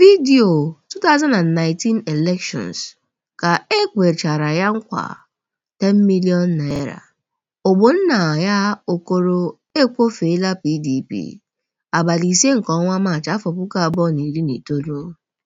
vidio 2019 Elections: Ka e kwechara ya nkwa #10 million ya Okoro ekwofeela PDP, abalị ise nke ọnwa Maachị afọ puku abụọ na na iri itolu